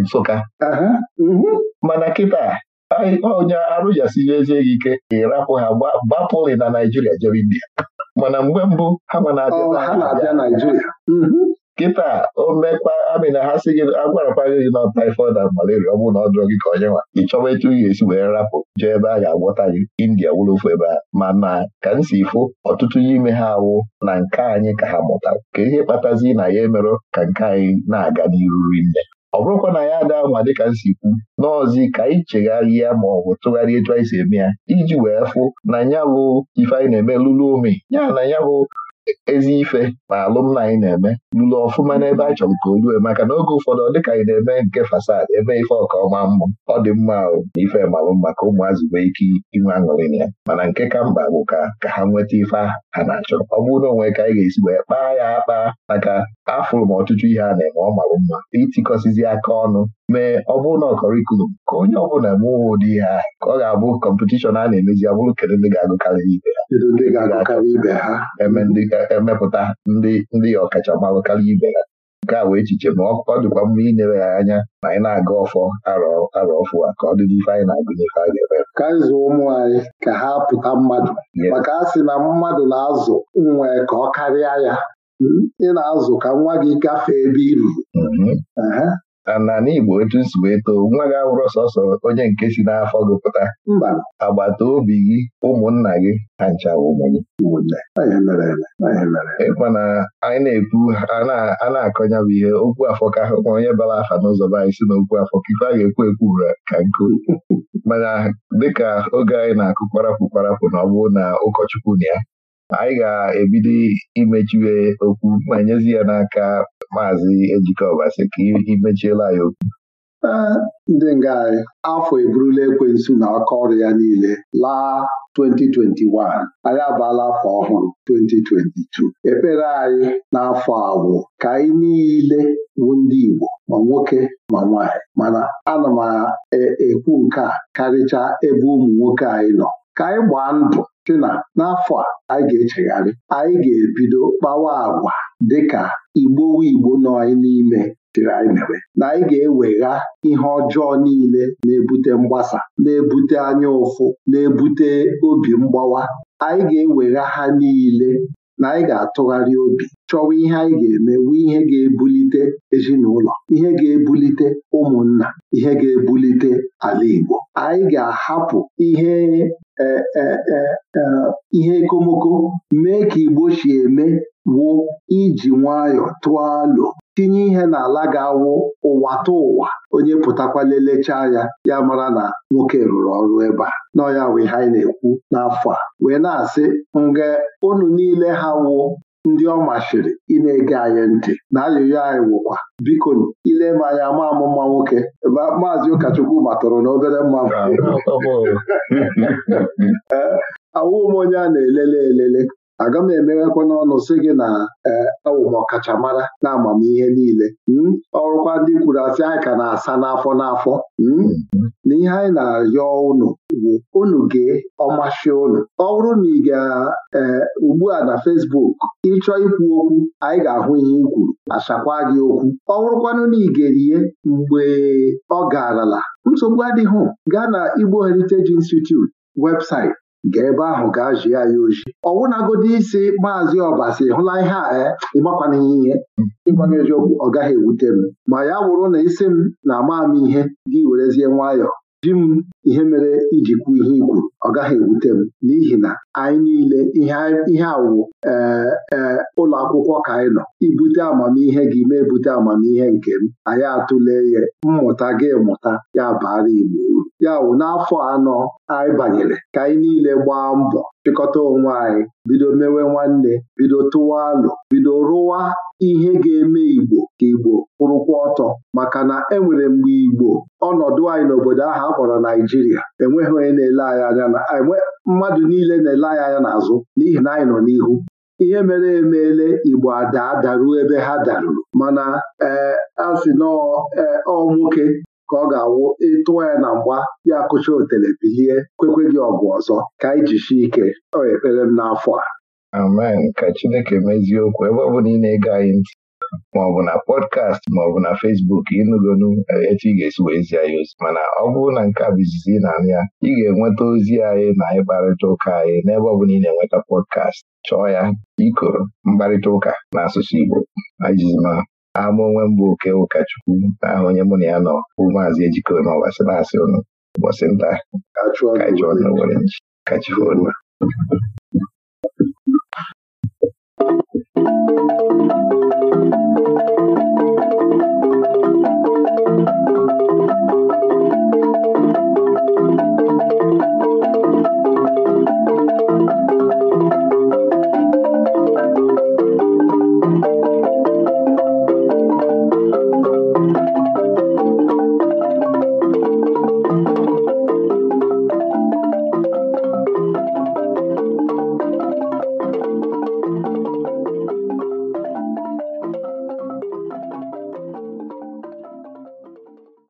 [SPEAKER 1] Nsụka mhm. mana kịta onye oh, arụjasiri ezi gị ike ịrapụ ha gbapụlị na Naijiria jere India mana mgbe mbụ ha ma na-abịa Naijiria kịta omekpa amịna ha si gị agwarakwa gị na taifọd na malaria ọ bụrụ na ọ dụrọ gị ka onye nwa ị chọwa etu ị ga-esi wee rapụ jee ebe a ga-agwọta gị india wụrụ ofu ebe a ma na ka m si fụ ọtụtụ n'ime ha awụ na nke anyị ka ha mụta ka ihe kpatazi na ya emerụ ka nke anyị na-aga n'iru rinne ọ bụrụkwa na ya ada ma dịka m si kwu n'ọzi ka anyị ya ma ọ bụ tụgharịa etu anyị si eme ya iji wee fụ na ya bụ ife anyị na-eme lụrụ ome ya na ya ezi ife ma alụmna anyị na-eme lụrụ ọfụma n'ebe a chọrọ ka o ruo maka na oge ụfọdụ ọ dịka anyị na-eme nke fasad ebe ife ọka ọma mmụ ọ dị mma ahụ na ife malụ maka ụmụazị nwee ike inwe aṅụrị na ya mana nke ka mba bụ ka ka ha nweta ife ha na-achọ ọ bụrụ na onwe ka anyị ga-esi wee kpaa ya akpa maka afụrụ m ọtụtụ ihe a na-eme ọ malụ mma itikọsizi aka ọnụ mee ọ bụrụ na ọkọrikulum ka onye ọ ọbụla mụwa ụdị ihe ahụ ka ọ ga-abụ kọmpetishọn a na-emezi abụrụ kedu ndị ga-agụkarị ibe ha eme ndị ga-emepụta ndị ndị ọkachamara karịa ibe ya nke a wee echiche ma ọ dịkwa mma inewe ya anya na anyị na-aga ọfọ arọ ọfụ a ka ọ dịdị ife anyị na-agụ n'ife a ga ka anyị ụmụ anyị ka ha pụta mmadụ maka
[SPEAKER 2] a sị na mmadụ na-azụ nwa ka ọ karịa ya hmm. ị na-azụ ka nwa gị gafee
[SPEAKER 1] ebe i ruru mm-hmm. na Igbo etu nsi wee too nwa gị abụrụ sọsọ onye nke si n'afọ gị pụta agbata obi gị ụmụnna gị ha ncha ụmụ gị na anyị na-ekwu a na-akọnya bụ ihe okwu afọ ka ma onye bara afa n'ụzọ be anyị si na okwu afọ ka ife a ga-ekwu ekwu ka nkụ mana dịka oge anyị na-akụ kparapụ kparapụ na ọ bụrụ na ụkọchukwu na ya anyị ga-ebido imechiwe okwu ma nyezi ya n'aka maazị Ejike Ọbasi ka imechiela ya okwu ndị nga
[SPEAKER 2] anyị afọ eburula ekwensu na aka ọrụ ya niile laa 2021 anyị abala afọ ọhụrụ 2022 ekpere anyị n'afọ awụ ka anyị niile bụ ndị Igbo ma nwoke ma nwaanyị mana ana m ekwu nke a ebe ụmụ nwoke anyị nọ ka anyị gbaa ndụ sị na n'afọ a anyị ga-echegharị anyị ga-ebido kpawa agwa dịka igbowo igbo nọ anyị n'ime tiri anyị mere, na anyị ga-ewegha ihe ọjọọ niile na-ebute mgbasa na-ebute anya ụfụ na-ebute obi mgbawa anyị ga-ewegha ha niile na anyị ga-atụgharị obi chọwa ihe anyị ga-eme wee ihe ga-ebulite ezinụlọ ihe ga-ebulite ụmụnna ihe ga-ebulite ala Igbo anyị ga-ahapụ ihe e, e, e, ihe ekomoko mee ka Igbo si eme wụ iji nwayọọ tụọ lo. tinye ihe n'ala ga-awụ ụwa tụ ụwa onye pụtakwa lelechaa ya ya mara na nwoke rụrụ ọrụ ebe a nọ ya wee ha na-ekwu n'afọ a wee na-asị nga unu niile ha wụ ndị ọ machiri ị na-ege anyị ntị na ayụyọ anyị wụkwa biko ile m anya ma amụma nwoke maazị ụkọchukwu matụrụ na obere awụ m onye a na-elele elele aga m emeghekwa n'ọnụ sị gị na awụ e, e, ọkachamara na amamihe niile hmm? ọrụkwa ndị kwuru asị anyị ka na-asa n'afọ n'afọ hmm? na ihe anyị na-arịọ unu bụ unu gee ọmasị unu ọ bụrụ na ị ga e, ugbu a na Fesbuk ịchọ ikwu okwu anyị ga-ahụ ihe i kwuru achakwa gị okwu ọ bụrụkwanụ na ị mgbe ọ garala nsogbu adịghị gaa na Igbo Heritage Institute webụsaịtị gaa ebe ahụ gaa jie ya oji ọwụnagodi isi maazị ọbasi hụla ihe a eh? ịmakwana ihe ịgbana eziokwu ọ gaghị ewute m ma ya wụrụ na isi m na ama m ihe gị werezie nwayọọ ji m ihe mere iji kwu ihe ikwuru ọ gaghị ewute m n'ihi na anyị niile ihe awụ ee ụlọ akwụkwọ ka anyị nọ ibute amamihe gị mee ebute amamihe nke m anyị atụle ya mmụta gị mụta ya bara Igbo uru ya wụ n'afọ anọ anyị banyere ka anyị niile gbaa mbọ chịkọta onwe anyị bido mewe nwanne bido tụwa alụ bido rụwa ihe ga-eme Igbo ka Igbo kwụrụkwa ọtọ maka na enwere mgbe Igbo ọnọdụ anyị n'obodo ahụ a kpọrọ Naijiria enweghị onye na-ele anyị anya na e mmadụ niile na-ele anyị anya n'azụ n'ihi na anyị nọ n'ihu ihe mere emeele Igbo ada adaruo ebe ha daruru mana ee a sị e, ọ nwoke ka ọ ga-awụ ịtụọ ya na mgba ya kụcha otele bilie kwekwe gị ọgụ ọzọ ka anyị jishi ike ọ ekpere
[SPEAKER 1] m n'afọ a amen ka Chineke mezie okwu ebe ọ bụla ị na-ege anyị ntị maọbụ na pọdkast maọbụ na fesbuk ịnụgonu e, etu ị ga-esi wee zie anyị ozi mana ọ bụrụ na nke a bụ izizi ị na-anụ ya ị ga-enweta ozi anyị na anyị kparịta ụka anyị n'ebe ọ bụla ị na-enweta pọdkast chọọ ya ikoro mkparịta ụka n'asụsụ Igbo ijizima ama onwe mbụ oke ụkọchukwu na aha onye mụ na ya nọ bụ maazị ejikọ n'ọbasị na-asị ụnụ ụbọchị nta kachụọ na Thank you.